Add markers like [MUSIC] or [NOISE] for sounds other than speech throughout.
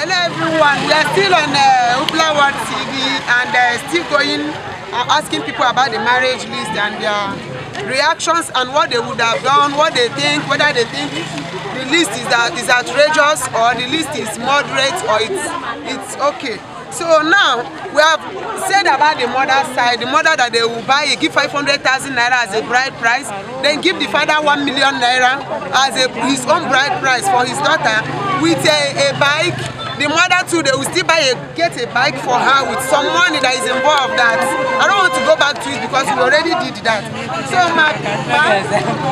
Hello everyone, we are still on uh, Upla World TV and uh, still going, uh, asking people about the marriage list and their reactions and what they would have done, what they think, whether they think the list is, uh, is outrageous or the list is moderate or it's, it's okay. So now we have said about the mother side, the mother that they will buy, give 500,000 naira as a bride price, then give the father 1 million naira as a, his own bride price for his daughter with a, a bike The mother too, they will still buy a, get a bike for her with some money that is involved that I don't want to go back to it because we already did that. So my, my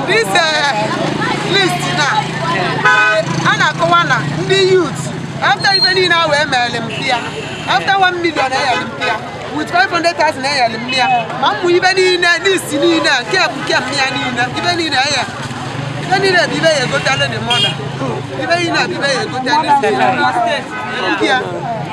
this uh, list now, uh, Anna Kowana, the youth, after even in our Olympia, after one million Olympia, with 500,000 Olympia, Mamu even in this, in here, care, care, even in here. Any day bibe ye go tell the mother. Bibe ina bibe ye go tell the mother.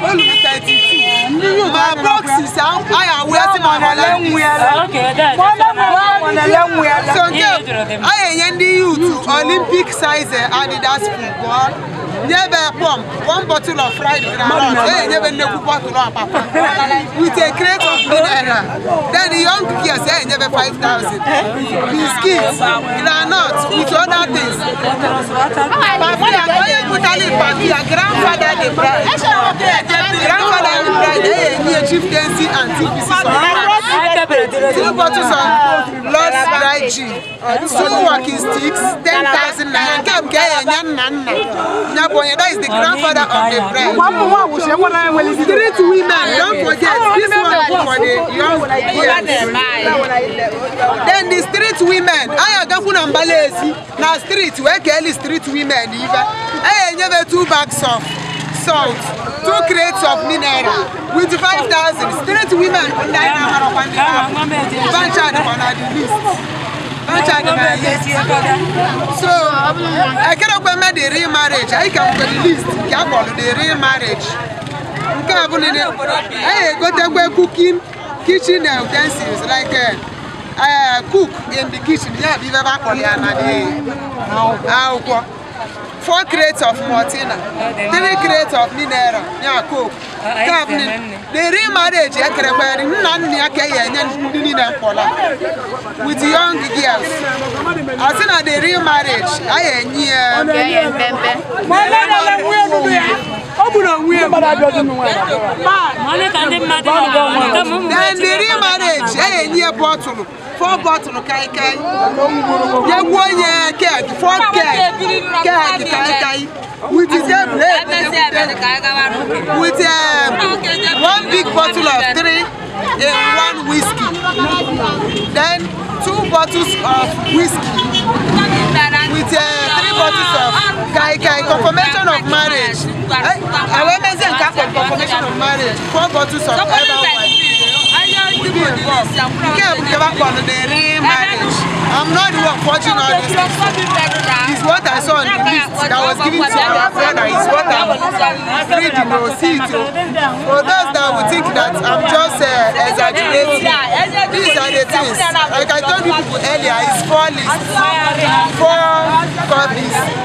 Olùmí 30. My box is out. I am wearing on a long wheel. Okay, that's on a long wheel. So, I am the youth Olympic size Adidas football. Never pump one bottle of fried groundnut. Hey, never no bottle of papa. With a crate of banana. Then the young kids, hey, never five thousand. Biscuits, groundnut, with other things. Papi, I'm going to put on it. Papi, grandfather, the bride. Grandfather, the bride ẹ̀yẹ ní chieftaincy and TPC two bottles of lost dry gin two walking sticks ten thousand naira nke nke ẹ̀yẹ nya nna nna nyabonye that is the grandfather of the bride street women don't forget this one for the young girls then the street women ayagakwu na mbalaezi na street wee keeli street women ibe ẹ̀yẹ nyebe two bags of salt, two crates of mineral with 5,000 straight women online na Bancha dị na the list. Bancha dị the list. So, ekerekwe me the real marriage, anyị ka mgbe the list ka akpọrọ the real marriage. Nke a bụ nile, anyị egotekwe cooking kitchen utensils like uh, uh, cook in the kitchen, ya bụ ibe akpọrọ ya na akwụkwọ. Fourth crates of maltina third crates of mineral ya coke cap na-eri marriage ekerekwari nna nna ya ka ya enye ndị niile mkpọla with young girls asị na the real marriage a ya enye ya ọ bụ na onwe ya dendiri marriage a ga-enye ya bọtụlụ four bottle kai kai ye wo ye keg four keg keg kai kai with the blade with um, one big bottle of three in one whiskey then two bottles of whiskey with um, difficulties of kai kai confirmation of marriage àwọn eh, mẹ́sẹ̀ nǹkan pẹ̀lú confirmation of marriage four bottles of herbal wine would be involved kí I'm not the one forging all these it's what I saw on the list that was given to our brother it's what I'm reading or see for those that would think that I'm just uh, exaggerating things. Like I told you earlier, it's four lists. Four copies.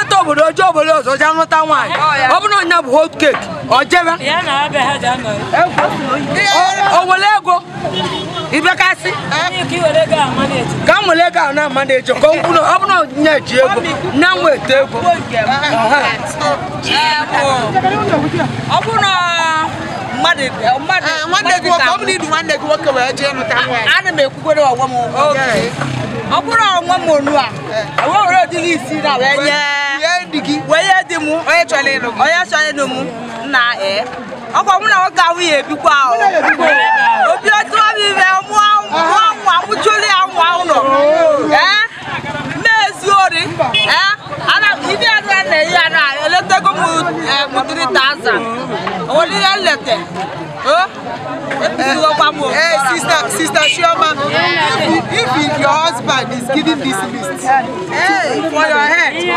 obodo oje obodo ọzọ nwaanyị oh, ọ bụrụ na bụ hot cake ọ jebe o were ego ibekasị ka m ego ahụ na amaneji ka ọ bụrụ na ji ego na nweta ego ah, ọ bụrụ na ana m m ụgwọ ọ bụrụ onwe m onu a ewewere udiri isi na wee nye wee nye di onye chọrọ ịlụ onye chọrọ ịlụ m nna ee ọkwa mụ na nwoke ahụ ya ebikwa obi otu ọbụ ime mụọ nwa mụchụrụ ya nwa ụlọ ee mmezi ori ee ana ibi na ya eletego eh? eh? m eh, nlete oh? Hey, sister, sister Shioma, if, if your husband is giving this list hey, for your head, if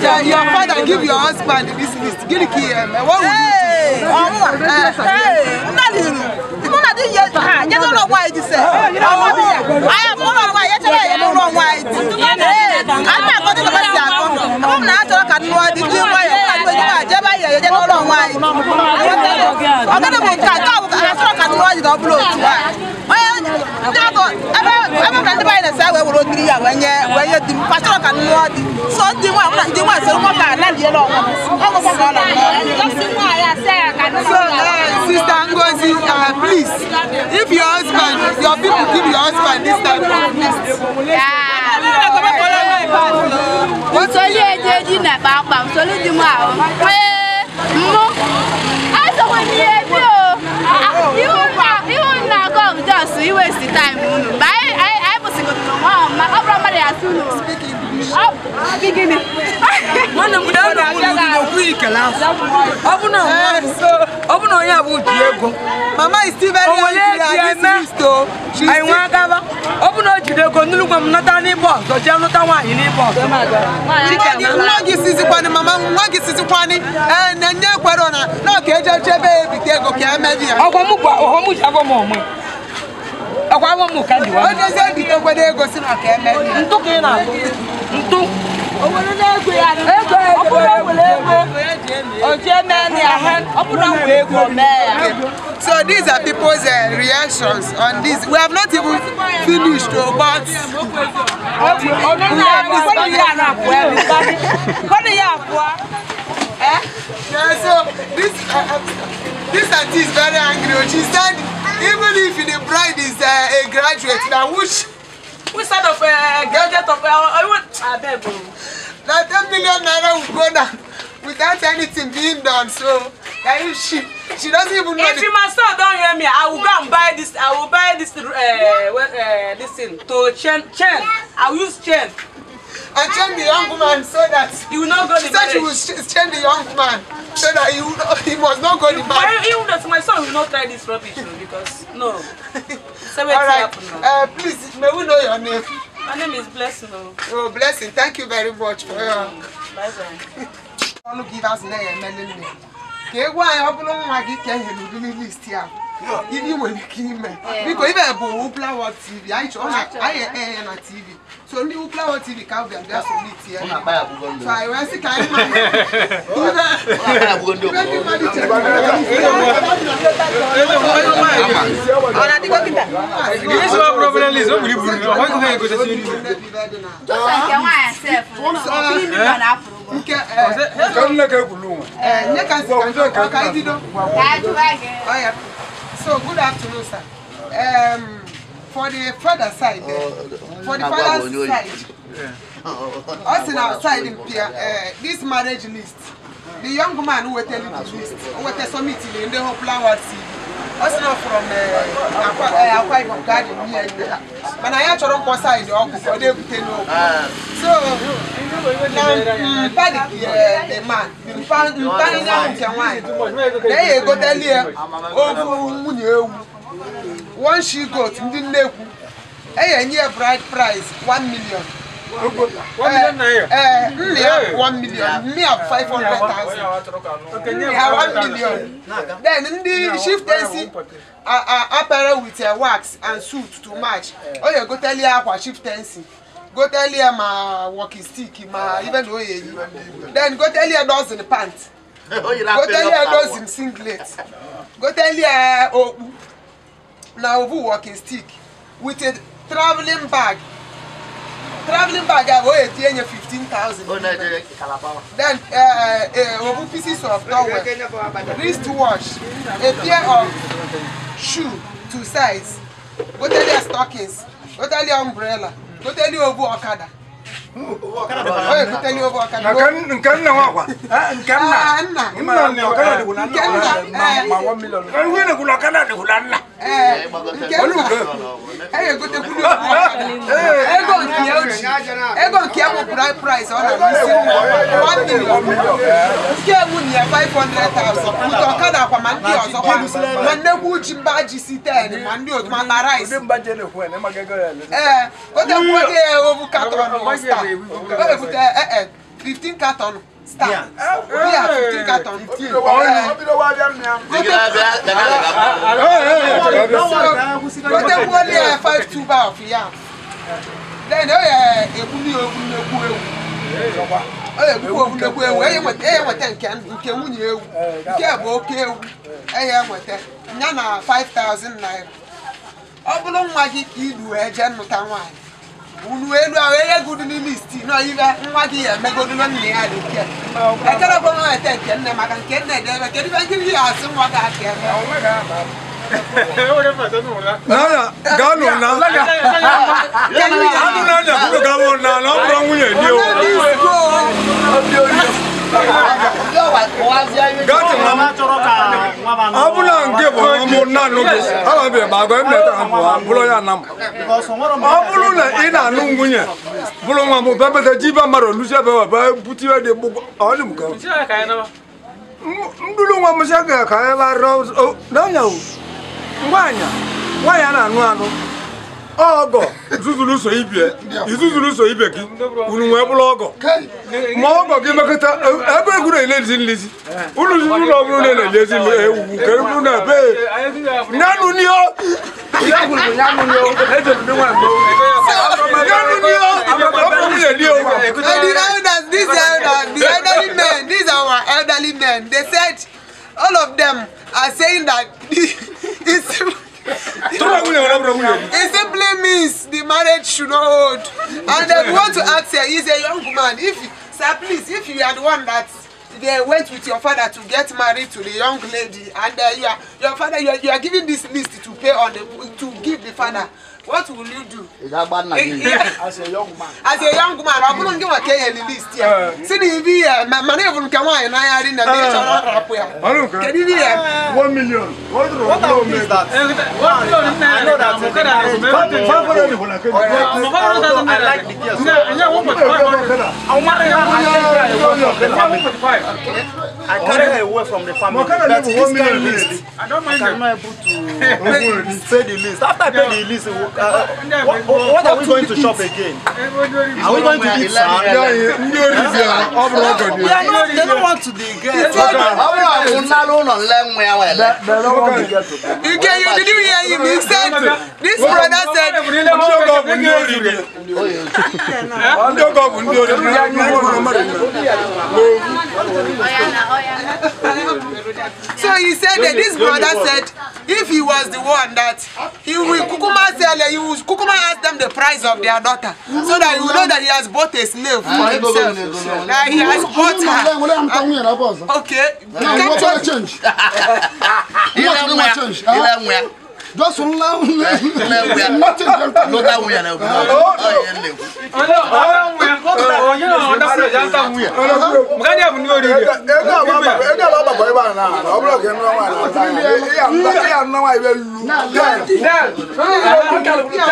your, your father give your husband this list, give it to him. What would hey, you do? I am not why I am not why I'm not going to let that I'm not talking about the new way. I'm not going to let that I'm not going to let that ọbụla otu a onye ndị ọgọ ebe ebe ka ndị banyere sa wee were ogiri ya wee nye wee nye di m kpachara ka nnụọ di so ndị nwa mụ na ndị nwa sịrị nwata a naliela ọnwa ọnwa ka ọ nọ so uh, sister Ngozi uh, please if your husband your people give your husband this time Yeah. eji eji na kpakpa nsoli di m ahụ ekele afọ ọ bụ na ọ eh, bụ na onye abụ ji ego mama is still very young oh. she has this to she is still agaba ọ bụ na o jiri no! nnu gwa m nata n'ịbọ ọzọ jee nụta nwaanyị n'ịbọ ọzọ nwa gị sizikwanị mama nwa gị sizikwanị ee eh, na nne kwere na no! ọ ka eje chebe ebite ego ka emedi ya ọgwa m bụ ọghọm ji abọ m ọma awa mu ka diwa. Onye ezi ebi tọgbọ na-egosi maka eme. Ntu ka ị na-atụ. Ntu. Obodo na-egwe ya. Ego ego. Ọ bụrụ ewere egwe. Oji eme So these are people's uh, reactions on this. We have not even finished, though, but eh, ah? eh? yeah, so this uh, uh, this auntie is very angry. Oh, she said even if the bride is uh, a graduate now which. which side of uh, graduate of uh, even abeg o. Now ten million naira will go down without anything being done so now if she she doesn't even know. if the... my son don't hear me i will go and buy this i will buy this uh, well, uh, this thing to chain chain i will use chain and change the young man so that he will not go the marriage. She will change the young man so that he, will not, he must not go you, the marriage. Even that my son will not try this rubbish because no. so All right. Uh, please, may we know your name? My name is Blessing. Oh, Blessing. Thank you very much for your. Bye bye. Ọnụ gị ịbazụ na-emelele ka egwu anyị ọ bụrụ nwa gị ka e nyere udiri listi If you will kill me. Because if I go Uplawa TV, I show I am na TV. So only Uplawa TV can be just only TV. So I will see can man. This is our problem is nobody will know. How can I go to see you? Just like your wife self. Nke eh. Kan na ka kulu. Eh, ne kan kan ka ka dido. Ka ju age. Oh yeah. So, good afternoon, sir. Um, for the father side, uh, for the father side, us in our side in Pia, uh, this marriage list, the young man who attended the list, who attended some meeting in the whole flower TV. Us now from uh, Akwa Ibom Garden here. Mana ya chọrọ mkpọsa in the ọkụ, ọ na-ebute n'okwu. So, na mpadi the man mpadi na nke nwanyị na ya egoteli ya ofu nwunye ewu one she goat ndị nnekwu enye ya bride price 1 million nne ya 1 million mme ya 500,000 ya 1 million then ndị shiftensi apara with wax and suit to match ọ ya egoteli ya akwa shiftensi go tell her my walking stick my even though he then go tell her dozen pants go tell her dozen singlet go tell her okpu na ovu walking stick with a travelling bag travelling bag a wey etinye nye fifteen thousand oh, then uh, uh, uh ovu oh, pieces of towel wrist watch a pair of shoe two size go tell her stockings go tell her umbrella. tó tẹ́ ní owó ọ̀kadà nkanna wa kwa nkanna nkanna nkanna de kunna nkanna ma wa miliyɔn. ɛɛ wuli de kunna nkanna de kunna nna. egote kulu ego nke ya oji ego nke ya bụ price ọ na-abụsi 1 million nke ewu na ya 500,000 nke ọkada akwa ma ndị ọzọ kwa ma nnekwu uji mba ji si 10 ma ndị otu ma na rice ee gote kwuo gị ya ovu katọn ọsta o ebute 15 katọn star ọ bụrụ nwa gị ka i du jee nnụta nwaanyị unu elu ahụ enye n'ime isti nọ nwa gị ya emegodu na nna ya dị nke ekele bụ nwa ete nke nne maka nke nne ebe kedu ibe ndị ya nwa gị aka eme e na na ọ bụrụ nwunye dị o abula nke bụ ọmụ nanụ gị ababeghị ma agwa bụrụ ya na m ọ bụrụ na ị na-anụ nwunye bụrụ nwa m bebeta jibe mmadụ luzie bewa bee butiwe dị gbụgbọ ọ dị m ka ndụrụ nwa ga na-anụ anụ ọgọ zuzulu so ibie izuzulu so ibe gị unu wee bụrụ ọgọ ma ọgọ gị mekọta e, ebe egwu na-ele ezi nlezi unu zuru ụlọ ọbụrụ na-ele ezi ewuwu ka egwu na be nyanụ nio the elderly men these our elderly men they said all of them are saying that this [LAUGHS] He simply means the marriage should not hold. And I want to ask her, he's a young man. If sir, please, if you are the one that they went with your father to get married to the young lady, and uh, you are, your father, you are, you are giving this list to pay on the, to give the father. What will you do? Eh, As a young man. As a young man, I wouldn't give a K and list here. See the V, uh, money will come on and I had in the didn't have a Can you hear? Uh, uh. One million. What road is that? What road is that? I know that. I like the gears. I carry her away from the family. But this kind list, I don't mind. I'm able to pay the list. After I pay the list, uh, what, are we going to shop again? Are we going to eat sand? Ndị oriri ya, ọ bụrụ ọgọ dị. They don't want to dey get. Ọ bụrụ abụ nnara ụlọ nle nwa ya nwere. Ike you didn't hear him, he said, this brother said. Ndị ọgọ bụ ndị oriri. Ndị ọgọ bụ ndị oriri. So he said that this brother said if he was the one that he will kukuma sell there, you come and ask them the price of their daughter. So that you know that he has bought a slave for ah, himself. That he has bought her. Okay. Capture. Change. How much do you change? just laugh. Nothing can come. No, that we are now. Oh, oh, we are not. Oh, you know, that's the Janta. We are. Mgani ya mniwe rege. Ega baba, ega baba kwa iba na. Obro ke nwa wa. Ya mba, ya nwa wa ibe lu. Na, na.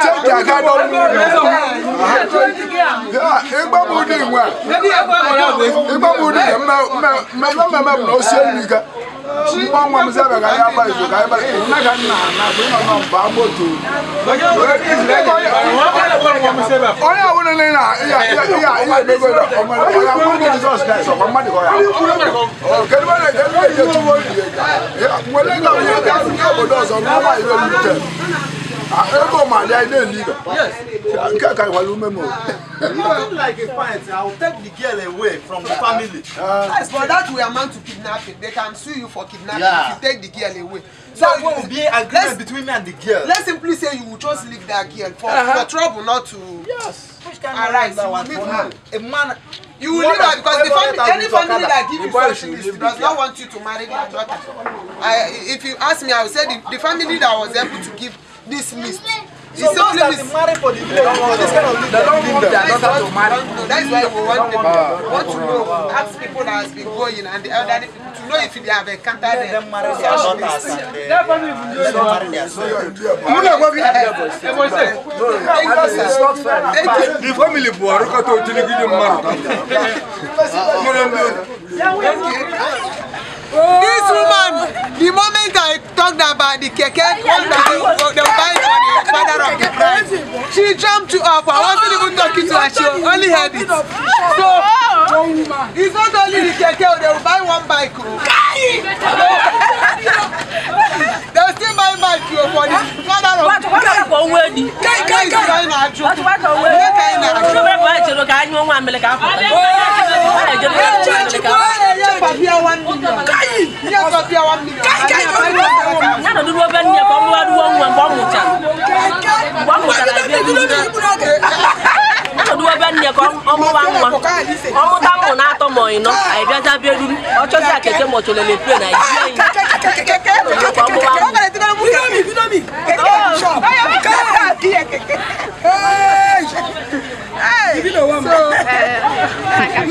Check ya ka do lu. Ya, egba mu di nwa. Egba mu di nwa. Mma mma mma mma no se ni ka nwa m sebe ka ya gba izu ka ya gba izu nna ka nna na bụ ịnọ nọ mba moto onye ọbụla na na ihe emego ya ọmụrụ jizọs kraịst ọkwa mmadụ ka ya kedu ebe na-eje ebe na-eje tuwo nwere ka onye ga-abụ obodo ọzọ n'ụwa iwe rute Ego Malia, I didn't leave her. Yes. I can't carry one woman. You look like a parent. I will take the girl away from the family. Ah. yes, but that we are meant to kidnap it. They can sue you for kidnapping yeah. if you take the girl away. So that will be an agreement between me and the girl. Let's simply say you will just leave that girl for, uh -huh. for trouble not to yes. arise. You will leave her. A man you will leave her because the family any family that give you something does not want you to marry their daughter i if you ask me i will say the the family that was able to give this list. So it's those that is married for the village for this kind of leader. They don't want their daughter to marry. That's why we want them uh, want to know, ask people that has been going and the elderly people to know if they have encountered them. Them marry their daughters and they don't marry their sons. You know what we have? It's not fair. The family boy, look at how they get married. This woman, the moment I talked about the keke one the father of the bride. She jumped up. I wasn't even talking to her. She oh, only heard oh, it. Oh, so it's not only the keke. They will buy one bike ọmụ tango na-atọ ma ọyị nọ anyị bịaza bịa ruru ọchọzi akeke ma ọchọlele pie na iji anyị ọmụwa mami kẹ̀kẹ́ shop Hey, you na wa ma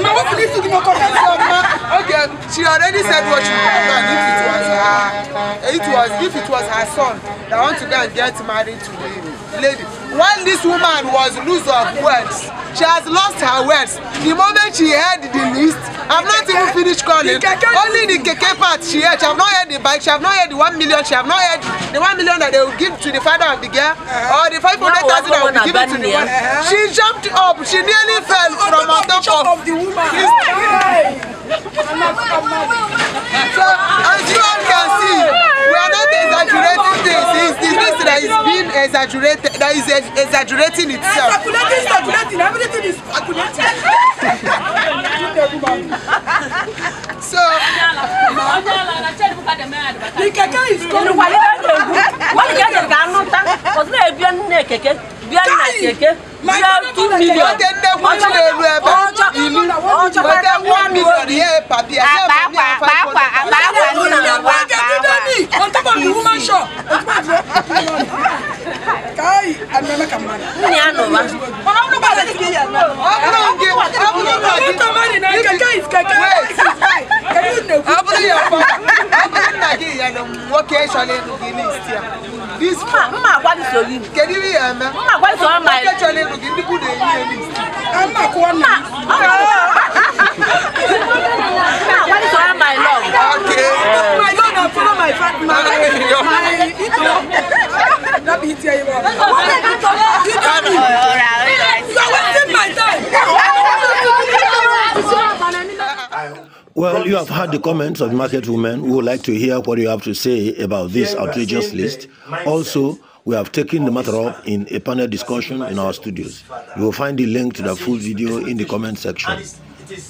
ma wo fi lisi gina kọ fẹsẹ ọma okay she already said what she wan if it was her it was if it was her son that want to go and get married to the lady when this woman was loose of words she has lost her words the moment she heard the list i've not even finished calling only the KK part she heard she have not heard the bike she have not heard the one million she have not heard the one million that they will give to the father of the girl uh-huh. or the five hundred thousand that will be given to the one she jumped up she nearly fell from on top of the woman. so as you all can see not exaggerating This It's this that is being exaggerated, that is exaggerating itself. Calculating, exaggerating. everything is exaggerating. [LAUGHS] so, the keke is coming. Wọ́n yẹ kẹ̀kẹ́ anúta, ọ̀sùn náà ebi ẹnu náà kẹ̀kẹ́, bí ẹnu náà kẹ̀kẹ́, bí ẹnu two million. Wọ́n tẹ ndé wúlò lẹ́nu ẹ̀bẹ̀, ìlú wọ́n tẹ one million yẹ pàbí ẹ̀ ṣẹ́ bẹ̀ ní àfáà. Àpá àpá àpá àpá nínú wa pa. Mommy, on top of the woman shop. Kai, I'm not a man. Yeah, no, man. But I'm not going to get I'm not going to get I'm not going to get This mma gwa so yi. Kedu ihe eme? Mma gwa so ma. Kedu ihe eme? Ndị bụ na-eyi elu. Mma kwa na. Ọ My, itu. Well, you have heard the comments of market women. We would like to hear what you have to say about this outrageous list. Also, we have taken the matter up in a panel discussion in our studios. You will find the link to the full video in the comment section.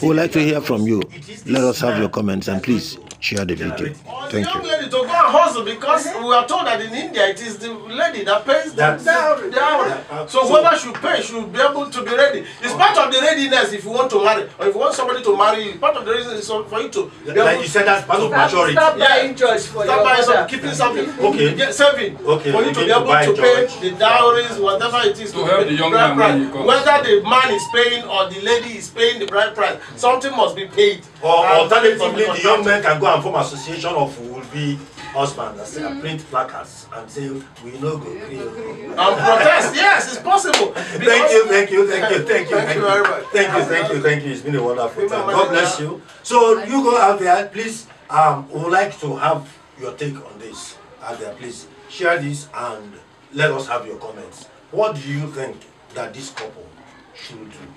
We would like to hear from you. Let us have your comments and please share the video. Thank young you. lady to go and hustle because we are told that in India it is the lady that pays the dowry. dowry. So whoever should pay should be able to be ready. It's part of the readiness if you want to marry or if you want somebody to marry you. Part of the reason is for you to be able like you said that's part of maturity. Stop buying yeah. for Stop buying something, keeping something, okay. Get saving okay. for you to be able to, pay the dowries, whatever it is. To, to help the young man. Whether the man is paying or the lady is paying the bride price. time. Something must be paid. Or alternatively, the young men can go and form association of would be husband and say, mm. print placards and say, we no go agree. And protest, yes, it's possible. thank you, thank you, thank you, thank you. Thank you very much. Thank you, thank you, thank you. It's been a wonderful time. God bless you. So you go out there, please, um, we would like to have your take on this out there. Please share this and let us have your comments. What do you think that this couple should do?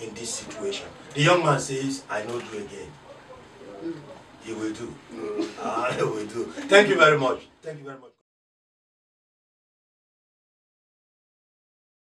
in this situation. The young man says, I know you again. Mm. He will do. [LAUGHS] I will do. Thank you very much. Thank you very much.